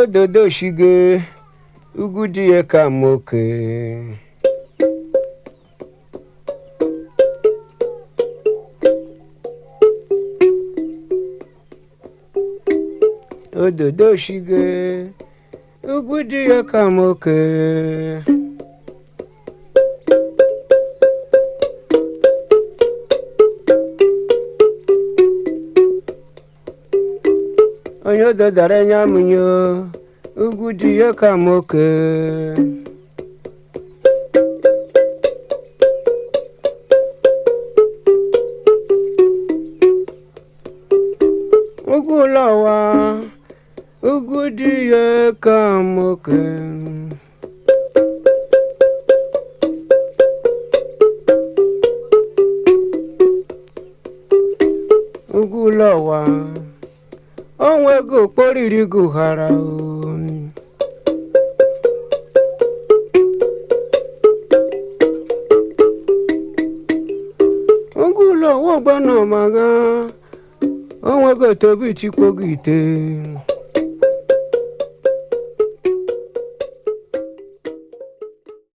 ododo shige ugwu di ya ka m ya ka m oke onye ododara anya amụnye ugwu dị ya ka moke ugwu ụlọ ụwa ugwu dị ya ka moke ugwu ụlọ ụwa onwego okporiri gị ụghara o oge ụlọ ọwa ọgbanamaga onwego etobe ichikpo gị ite